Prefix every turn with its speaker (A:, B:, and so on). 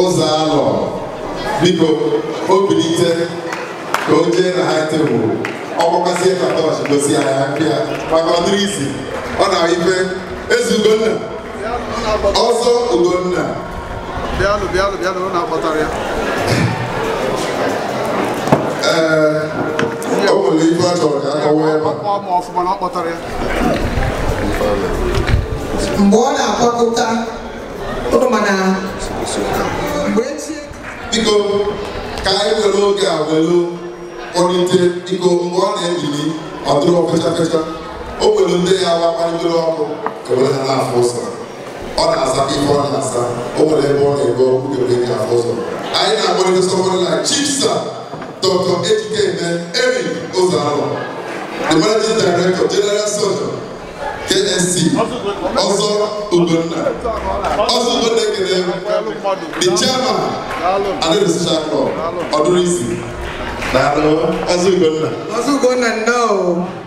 A: ụzọ alọ biko o bilite ka o jee na ha tebụl ọgbakazie katọch gosi anya pịa maka ọdịrị isi ọ na ife ezi ugonna
B: ọzọ ugonna bịanụ bịanụ bịanụ ọ na-akpọtara ya ee o nwere ife a chọrọ ka akọwa ebe mgbe ọ na-akpọkọta
C: biko ka anyị were oge a were kpọlite biko mgbe ọ na-ebili ọ dịrị fecha fecha o were ndị ya wakwanyere ọkụ
A: ewere ha n'afọ ụzọ ọ na-aza ife ọ na-aza o nwere ebe ọ na-ebe ọkụ ewere ha n'afọ ụzọ anyị na-akpọlite
D: sọmọrị na chipsa dr ejikeme erin ụzọalụ the managing director general soldier
E: ksc ọzọ ugonna ọzọ ugonna ekele the chairman
A: Aderisha Club Odurisi. Daalụ, Ọzọ Ugonna. Ọzọ Ugonna, nnọọ.